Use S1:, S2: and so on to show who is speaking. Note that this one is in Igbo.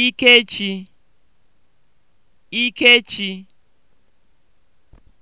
S1: Ikechi Ikechi